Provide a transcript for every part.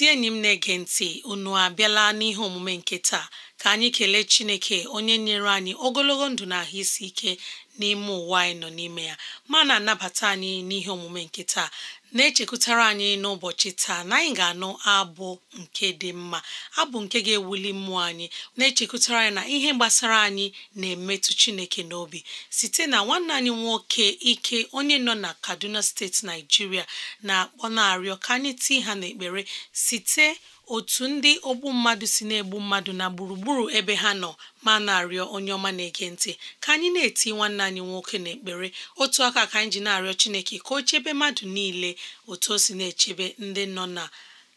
ezi enyi m na-ege ntị unu abịala n'ihe omume nke taa ka anyị kelee Chineke onye nyere anyị ogologo ndụ na ahụ isi ike n'ime ụwa anyị nọ n'ime ya ma na-anabata anyị n'ihe omume nke taa na-echekwutara anyị n'ụbọchị taa na anyị ga-anụ abụ nke dị mma abụ nke ga-ewuli mmụọ anyị na-echekwutara anyị na ihe gbasara anyị na-emetụ Chineke n'obi site na nwanne anyị nwoke ike onye nọ na Kaduna steeti Naijiria na-akpọ na-arịọ ka anyị tii ha n'ekpere site otu ndị ogbu mmadụ si na-egbu mmadụ na gburugburu ebe ha nọ ma na-arịọ onye ọma na-ege ntị ka anyị na-eti nwanne anyị nwoke n'ekpere otu aka ka anyị ji na-arịọ Chineke ka o chebe mmadụ niile otu o si na-echebe ndị nọ na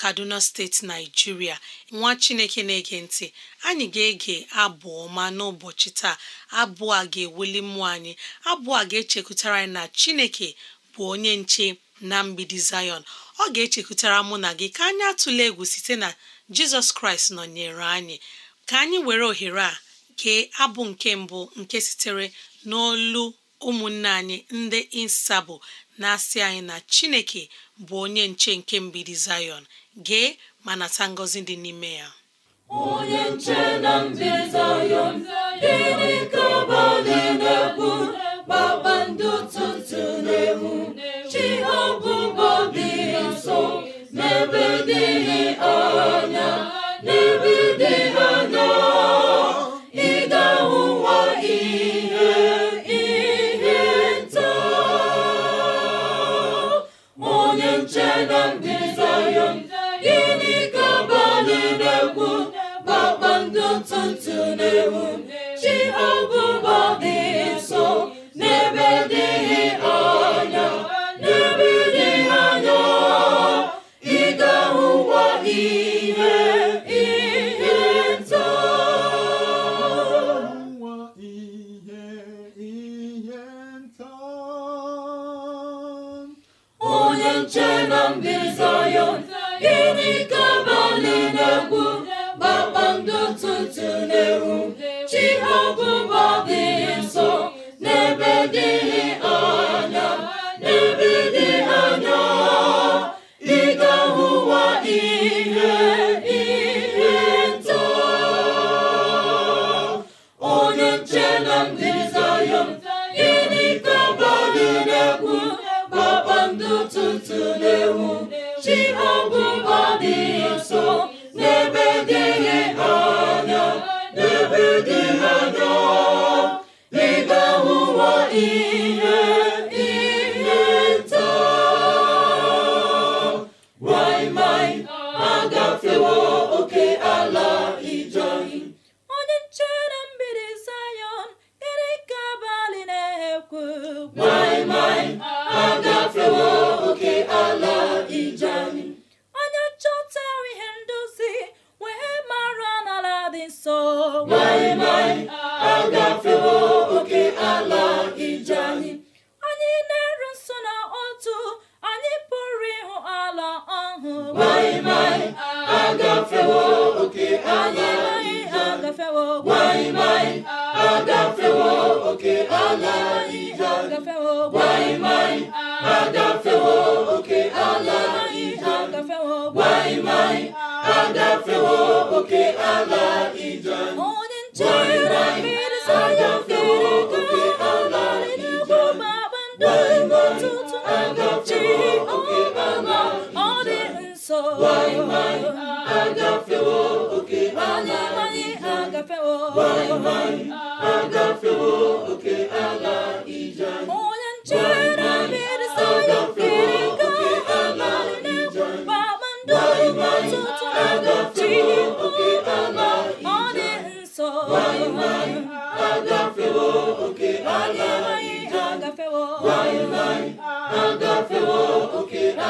Kaduna steeti Naijiria nwa Chineke na-ege ntị anyị ga-ege abụ ọma n'ụbọchị taa abụ a ga-eweli mmụọ anyị abụ a ga-echekwutara anyị na Chineke bụ onye nche na mgbidi Zion ọ ga-echekwutara mụ na gị ka anyị atụle egwu site na jizọs kraịst nọnyere anyị ka anyị were ohere a kee abụ nke mbụ nke sitere n'olu ụmụnne anyị ndị insabụ na-asị anyị na chineke bụ onye nche nke mgbidi zayọn gee ma nata ngọzi dị n'ime ya onye nche na mbi zayọn gịnị ka na kpakpando tụtụ n'egwu chi Hallelujah. away.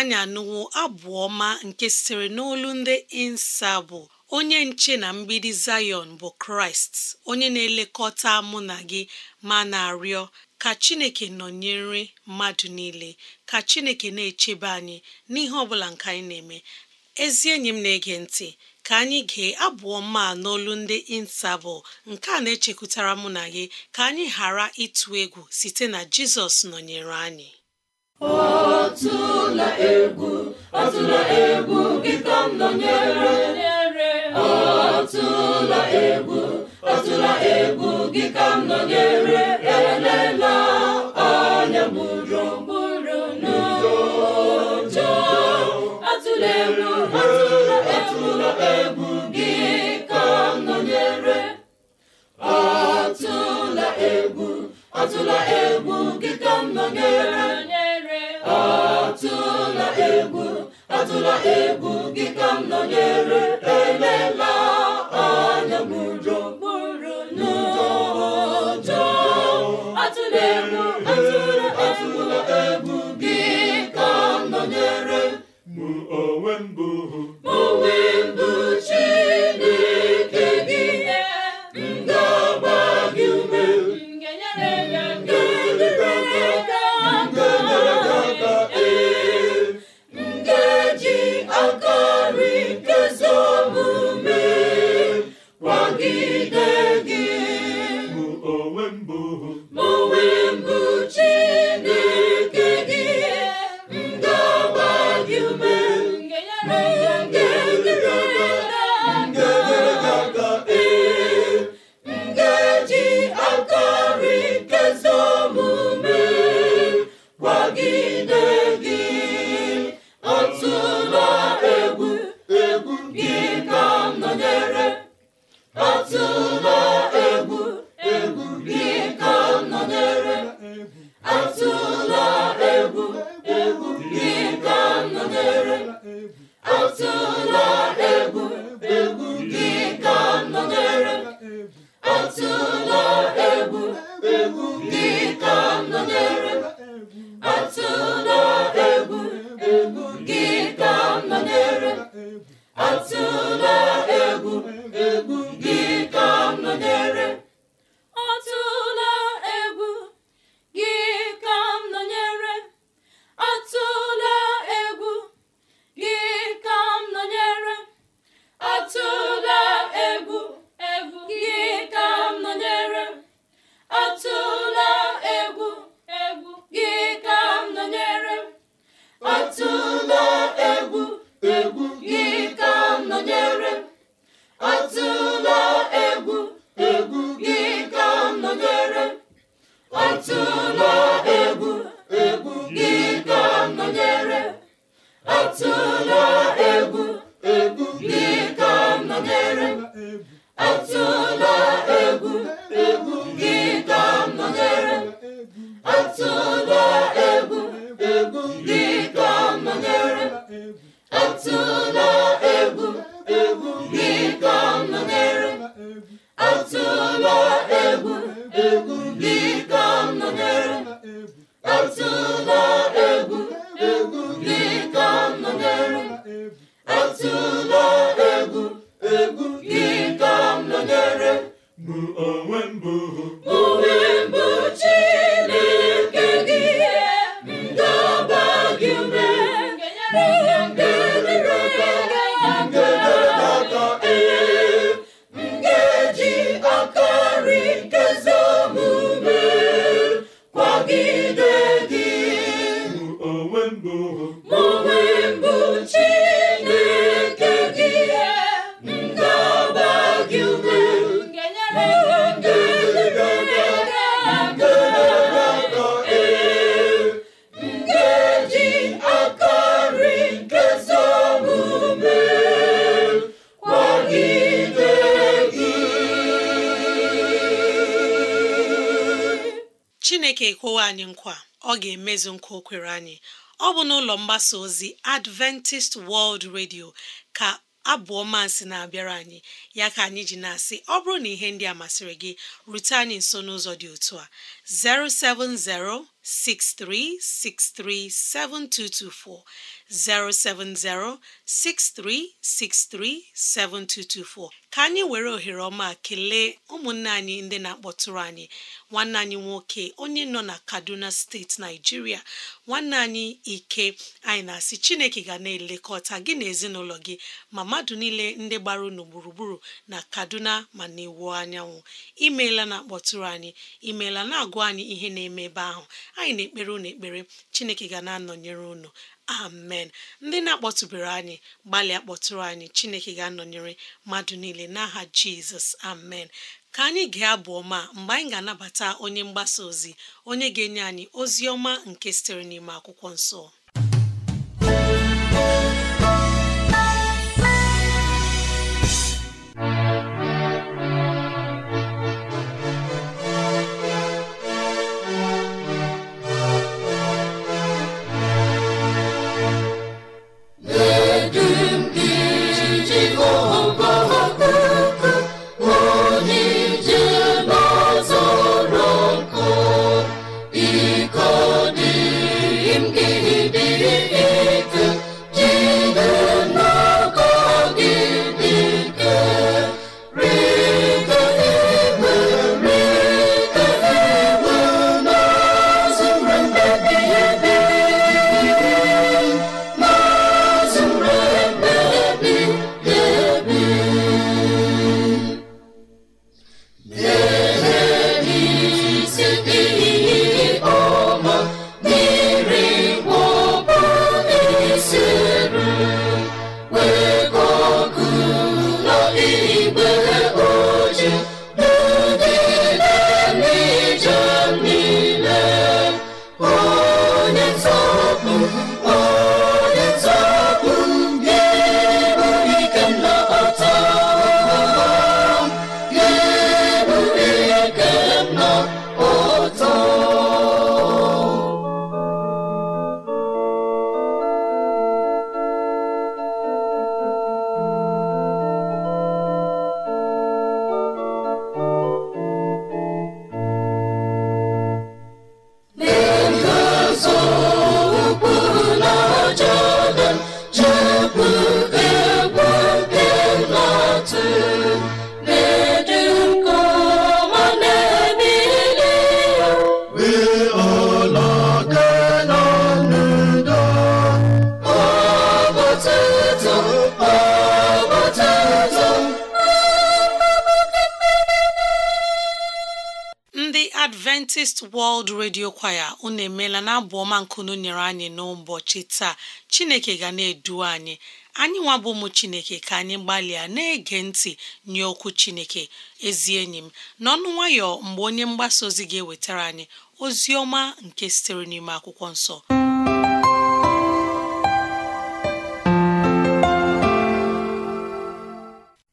anyị anụwo abụ ọma nke sitere n'olu ndị insabụ onye nche na mgbidi Zayọn bụ Kraịst onye na-elekọta mụ na gị ma na-arịọ ka Chineke nọnyere mmadụ niile ka Chineke na-echebe anyị n'ihe ọbụla nke anyị na-eme ezi enyi m na-ege ntị ka anyị gee abụọ ma n'olu ndị insabụ nke a na-echekwutara mụ na gị ka anyị ghara ịtụ egwu site na Jizọs nọnyere anyị ọtụla egwu ọtụla egwu kịta m nọnyere ọtụla egwu ọtụla egwu kịta m nọnyere elela anya mụrụ n'ụjọ egwu atụla egwu gị ka nọnyere egwu atụla egwu gị ka nọnyere atụla egwu atụla egwu gị otu chineke kwụwa anyị nkwa ọ ga-emezu nkwa o anyị ọ bụ n'ụlọ mgbasa ozi adventist world radio ka abụọ masị na-abịara anyị ya ka anyị ji na-asị ọ bụrụ na ihe ndị a masịrị gị rute anyị nso n'ụzọ dị otu a 07063637224 7224. ka anyị were ohere ọma kelee ụmụnne anyị ndị na-akpọtụrụ anyị nwanne anyị nwoke onye nọ na Kaduna steeti Naijiria nwanne anyị ike anyị na-asị Chineke ga na-elekọta gị na ezinụlọ gị ma mmadụ niile ndị gbara unu gburugburu na Kaduna ma na anyanwụ imeela na-akpọtụrụ anyị imeela na-agụ gwa anyị ihe na-eme ebe ahụ anyị na-ekpere unu ekpere chineke ga na-anọnyere unu amen ndị na-akpọtụbere anyị gbalịa kpọtụrụ anyị chineke ga-anọnyere mmadụ niile n'aha jizọs amen ka anyị gaa abụ ọma mgbe anyị ga-anabata onye mgbasa ozi onye ga-enye anyị ozi ọma nke sitere n'ime akwụkwọ nsọ Adventist World Radio kwaya unu emeela na abụ ọma nkunu nyere anyị n'ụbọchị taa Chineke ga na-edu anyị anyị nwa bụ ụmụ Chineke ka anyị gbalịa na-ege ntị nye okwu Chineke ezi enyi m n'ọnụ nwayọ mgbe onye mgbasa ozi ga-ewetara anyị ozi ọma nke sitere n'ime akwụkwọ nsọ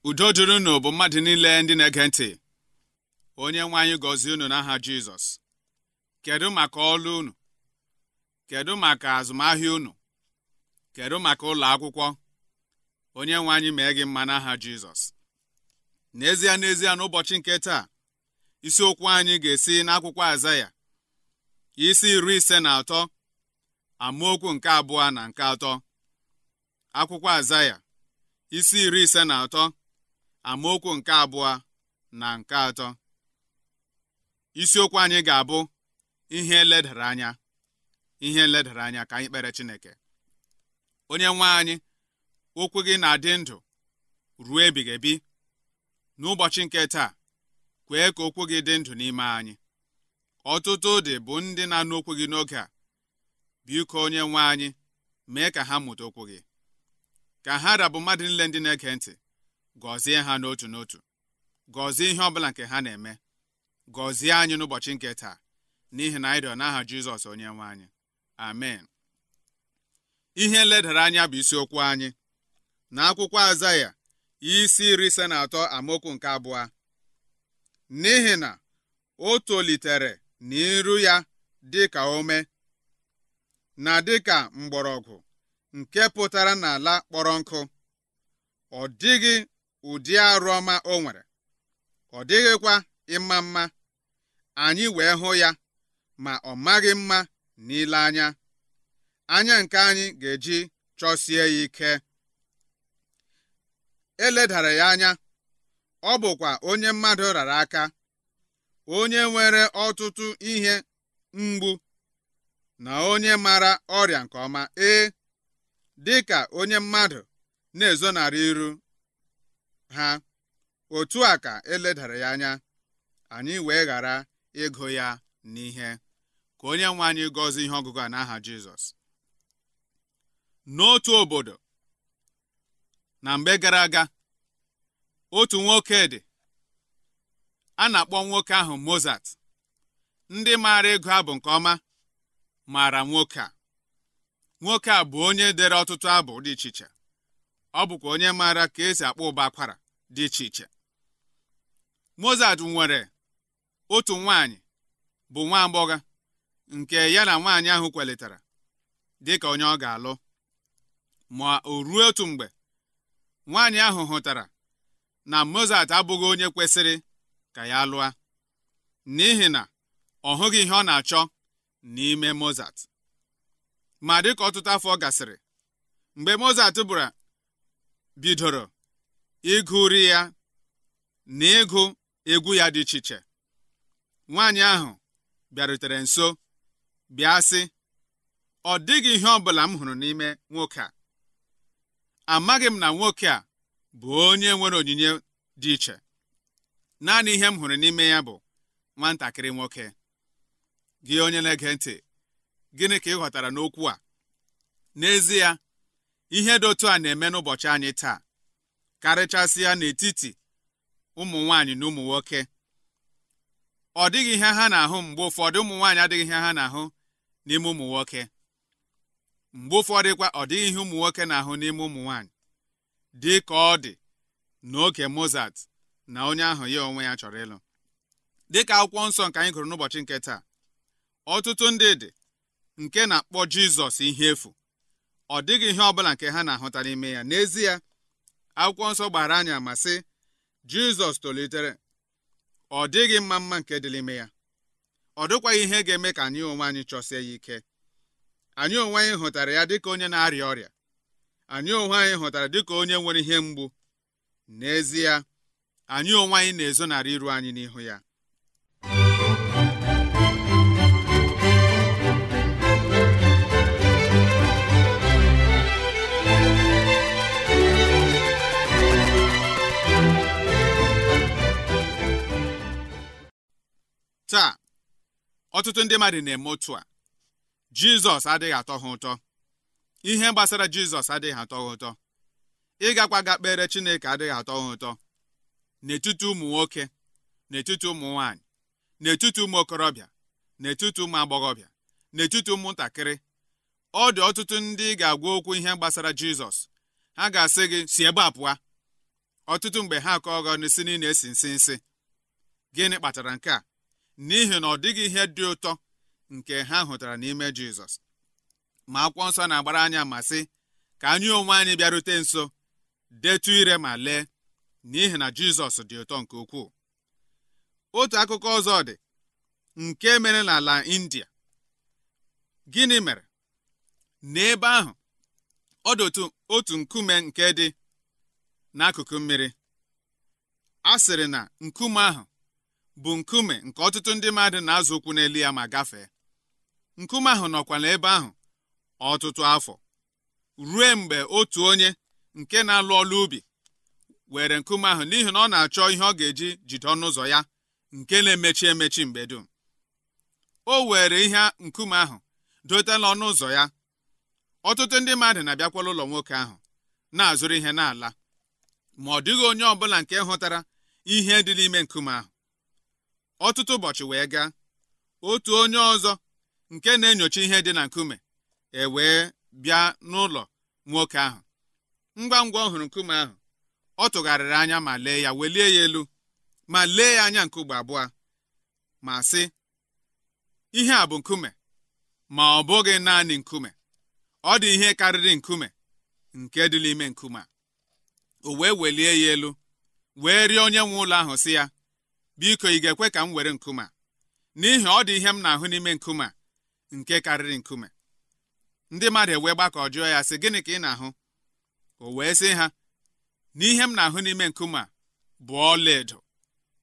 udo dịrị bụ mmadụ niile ndị na-ege ntị onye nwe anyị gọzie unu n'aha Jizọs kedu maka ọlụ unu kedu maka azụmahịa unu kedu maka ụlọ akwụkwọ onye nwe anyị mee gị mma n'aha Jizọs n'ezie n'ezie n'ụbọchị nke taa isiokwu anyị ga-esi n'akwụkwọ Azaya isi iri ise na atọ amaokwu nke abụọ na nke atọ akwụkwọ Azaya isi iri ise na atọ amaokwu nke abụọ na nke atọ isiokwu anyị ga-abụ ihe nledara anya ihe eledara anya ka anyị kpere Chineke onye nwe anyị okwu gị na-adị ndụ ruo ebighị ebi n'ụbọchị nke taa kwee ka okwu gị dị ndụ n'ime anyị ọtụtụ dị bụ ndị na-anụ okwu gị n'oge a biko onye nwe anyị mee ka ha mụta okwu gị ka ha rabụ mmadụ niile ndị na-ege ntị gọzie ha n'otu n'otu gọzie ihe ọ bụla nke ha na-eme gọzie anyị n'ụbọchị nke taa n'ihi na anyị rịọ n'aha jizọs onye nwe anyị amen ihe nledara anya bụ isiokwu anyị na akwụkwọ azaya isi iri ise na atọ amaokwu nke abụọ n'ihi na o tolitere n'iru ya dịka ome na dịka mgbọrọgwụ nke pụtara n'ala kpọrọ nkụ ọ dịghị ụdị arụ ọma o nwere ọ dịghịkwa ịma mma anyị wee hụ ya ma ọ maghị mma n'ile anya anya nke anyị ga-eji chọsie ya ike eledara ya anya ọ bụkwa onye mmadụ rara aka onye nwere ọtụtụ ihe mgbu na onye mara ọrịa nke ọma ee dị ka onye mmadụ na-ezonarị iru ha otu a ka eledara ya anya anyị wee ghara ịgụ ya n'ihe ka onye nwe anyị gọzie ihe ọgụgụ a n'aha Jizọs n'otu obodo na mgbe gara aga otu nwoke dị a na-akpọ nwoke ahụ Mozart ndị maara ịgụ abụ nke ọma maara nwoke a nwoke a bụ onye dere ọtụtụ abụ dị iche iche ọ bụkwa onye maara ka esi akpọ ụba akwara dị iche iche Mozart nwere otu nwaanyị bụ nwa agbọghọ nke ya na nwaanyị ahụ kwalitara dị ka onye ọ ga-alụ ma o ruo otu mgbe nwaanyị ahụ hụtara na Mozart abụghị onye kwesịrị ka ya lụọ n'ihi na ọ hụghị ihe ọ na-achọ n'ime Mozart ma dị ka ọtụtụ afọ gasịrị mgbe Mozart bụra bidoro ịgụri ya na ịgụ egwu ya dị iche iche nwaanyị ahụ bịarutere nso bịa sị ọ dịghị ihe ọ bụla m hụrụ n'ime nwoke a amaghị m na nwoke a bụ onye nwere onyinye dị iche naanị ihe m hụrụ n'ime ya bụ nwatakịrị nwoke gị onye na-ege ntị gịnị ka ị ghọtara n'okwu a n'ezie ihe dị otu a na-eme n'ụbọchị anyị taa karịchasịa n'etiti ụmụ nwaanyị na ụmụ nwoke ọ dịghị ihe ha na-ahụ mgbe ụfọdụ ụmụ nwaanyị adịghị ihe ha na-ahụ n'ime ụmụ nwoke mgbe dịkwa ọ dịghị ihe ụmụ nwoke na-ahụ n'ime ụmụ nwaanyị dị ka ọ dị n'oge Mozart na onye ahụ ya onwe ya chọrọ ịlụ dịka akwụkwọ nsọ nke anyị gụrụ n'ụbọchị nke taa ọtụtụ ndị dị nke na-akpọ Jizọs ihe efu ọ dịghị ihe ọbụla nke ha na-ahụta n'ime ya n'ezie akwụkwọ nsọ gbara anyị ama sị Jizọs tolitere ọ dịghị mma mma nke dị n'ime ya ọ dịkwaghị ihe ga-eme ka anyị onwe anyị chọsie ya ike anyị onwe anyị hụtara ya dịka onye na-arịa ọrịa anyị onwe anyị hụtara dịka onye nwere ihe mgbu n'ezie anyị onwe anyị na-ezonarị iru anyị n'ihu ya taa ọtụtụ ndị mmadụ na-eme otu a jizọs adịghị atọ ha ụtọ ihe gbasara jizọs adịghị atọ ha ụtọ ịgakwa ga kpere chineke adịghị atọ ha ụtọ n'etiti ụmụ nwoke n'etiti ụmụ nwanyị n'etiti ụmụ okorobịa n'etiti ụmụ agbọghọbịa n'etiti ụmụntakịrị ọ dị ọtụtụ ndị ga-agwa okwu ihe gbasara jizọs ha ga-asị gị si ebe a pụa ọtụtụ mgbe ha akọghọ si niile esi nsi nsị gịnị kpatara nke a n'ihi na ọ dịghị ihe dị ụtọ nke ha hụtara n'ime jizọs ma akwụkwọ nsọ na-agbara anya ma sị ka anyị onwe anyị bịarute nso detu ire ma lee n'ihi na jizọs dị ụtọ nke ukwuu otu akụkọ ọzọ dị nke mere n'ala india gịnị mere n'ebe ahụ ọ dị otu nkume nke dị n'akụkụ mmiri a sịrị na nkume ahụ bụ nkume nke ọtụtụ ndị mmadụ na-azụ ụkwụ n'elu ya ma gafee nkume ahụ nọkwala ebe ahụ ọtụtụ afọ rue mgbe otu onye nke na-alụ ọlụ ubi were nkume ahụ n'ihi na ọ na-achọ ihe ọ ga-eji jide ọnụ ụzọ ya nke na-emechi emechi mgbe dum o were ihe nkume ahụ dote n'ọnụ ụzọ ya ọtụtụ ndị mmadụ na-abịakwala ụlọ nwoke ahụ na-azụrụ ihe n'ala ma ọ dịghị onye ọbụla nke hụtara ihe dị n'ime nkume ahụ ọtụtụ ụbọchị wee gaa otu onye ọzọ nke na-enyocha ihe dị na nkume e wee bịa n'ụlọ nwoke ahụ ngwa ngwa ọ hụrụ nkume ahụ ọ tụgharịrị anya ma lee ya welie ya elu ma lee ya anya nke ugbo abụọ ma sị ihe a bụ nkume ma ọ bụghị naanị nkume ọ dị ihe karịrị nkume nke dị n'ime nkume a o wee welie ya elu wee rịọ onye nwe ụlọ ahụ sị ya biko ị ga-ekwe ka m were nkume n'ihi ọ dị ihe m na-ahụ n'ime nkume nke karịrị nkume ndị mmadụ ewee gbakọ jụọ ya sị gịnị ka ị na-ahụ o wee sị ha n'ihe m na-ahụ n'ime nkume a bụ ọlaedo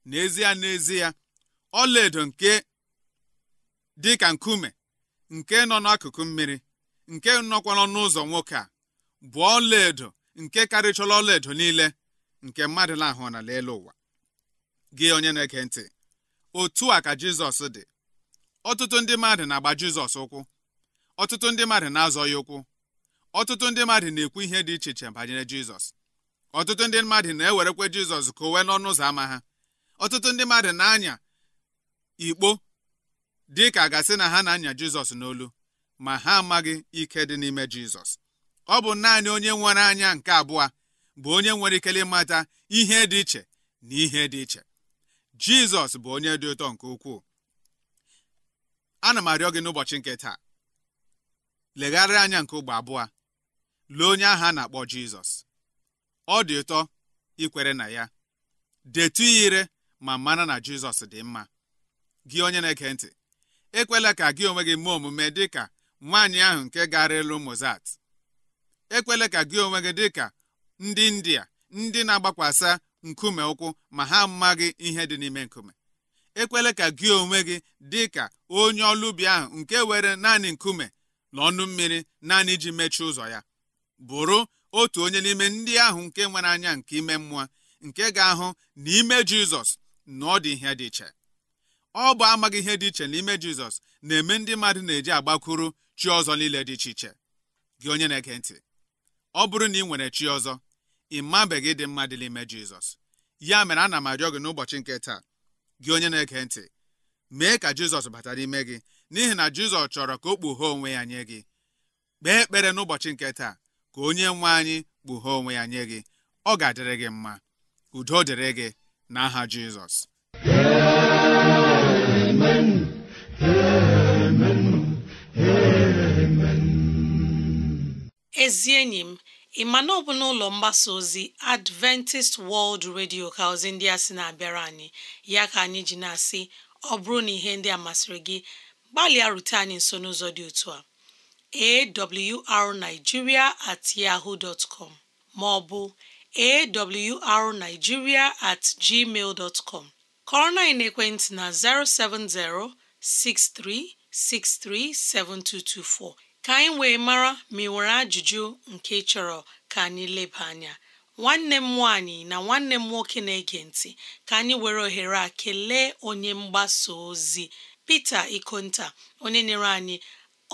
n'ezie n'ezie ọlaedo nke dị ka nkume nke nọ n'akụkụ mmiri nke nọkwa n'ọnụ ụzọ nwoke a bụ ọlaedo nke karịchọla ọlaedo niile nke mmadụ na-ahụ n'ala ụwa gị onye na-eke ntị otu a ka jizọs dị ọtụtụ ndị mmadụ na-agba jizọs ụkwụ ọtụtụ ndị mmadụ na-azọ ya ụkwụ ọtụtụ ndị mmadụ na-ekwu ihe dị iche iche banyere jizọs ọtụtụ ndị mmadụ na-ewerekwa jizọs ka o wee n'ọnụ ụzọ ámá ha ọtụtụ ndị mmadụ na-anya ikpo dị ka gasị na ha na-anya jizọs n'olu ma ha amaghị ike dị n'ime jizọs ọ bụ naanị onye nwere anya nke abụọ bụ onye nwere ikele ịmata ihe dị iche na ihe dị iche jizọs bụ onye dị ụtọ nke ukwuu ana m arịọ gị n'ụbọchị nke taa legharịa anya nke ụgbọ abụọ lee onye ahụ a na-akpọ jizọs ọ dị ụtọ ikwere na ya detu ya ire ma mara na jizọs dị mma gị onye na-ege ntị ekwela ka gị onwe gị mee omume dị ka nwaanyị ahụ nke gara elu mozat ekwela ka gị onwe gị dị ka ndị india ndị na-agbakwasa nkume ụkwụ ma ha amaghị ihe dị n'ime nkume ekwela ka gị onwe gị dị ka onye ọlụ ubi ahụ nke were naanị nkume na ọnụ mmiri naanị iji mechie ụzọ ya bụrụ otu onye n'ime ndị ahụ nke nwere anya nke ime mmụọ nke ga-ahụ n'ime jizọs na ọ dị ihe dị iche ọ bụ amaghị ihe dị iche n'ime jizọs na-eme ndị mmadụ na-eji agbakwuru chi ọzọ niile dị iche iche gị onye na-ege ntị ọ bụrụ na ị nwere chi ọzọ ị mabeghị dị mma dị n'ime jizọs ya mere ana m arịọ gị n'ụbọchị nke taa gị onye na-ege ntị mee ka jizọs bata n'ime gị n'ihi na jizọs chọrọ ka o kpughe onwe ya nye gị kpee ekpere n'ụbọchị nke taa ka onye nwe anyị kpughe onwe ya nye gị ọ ga-adịrị gị mma udo dịrị gị n'aha jizọs ezi enyi m ị ma na ọ bụ n'ụlọ mgbasa ozi Adventist World Radio ka ozi ndị a sị na-abịara anyị ya ka anyị ji na-asị ọ bụrụ na ihe ndị a masịrị gị gbalịa rute anyị nso n'ụzọ dị otu a awrnigeria at yahoo dot com maọbụ awrnigeria at gmail dot com kọrọ na na 070 6363 7224 ka anyị wee mara ma ị nwere ajụjụ nke ị chọrọ ka anyị leba anya nwanne m nwaanyị na nwanne m nwoke na-ege ntị ka anyị were ohere a kelee onye mgbasa ozi Pita Ikonta onye nyere anyị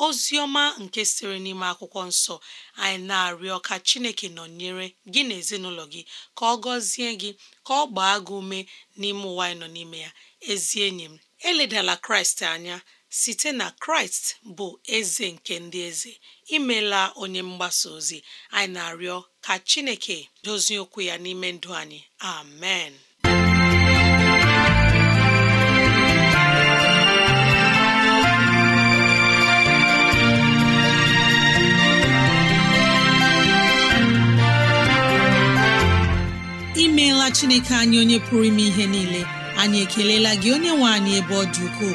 ozi ọma nke siri n'ime akwụkwọ nsọ anyị na-arịọ ka Chineke nọnyere gị na ezinụlọ gị ka ọ gọzie gị ka ọ gbaa gị ume n'ime ụwa anyị nọ n'ime ya ezi enyi m eledala Kraịst anya site na kraịst bụ eze nke ndị eze imela onye mgbasa ozi anyị na-arịọ ka chineke dozie okwu ya n'ime ndụ anyị amen imeela chineke anyị onye pụrụ ime ihe niile anyị ekelela gị onye nwe anyị ebe ọ dị ukwuu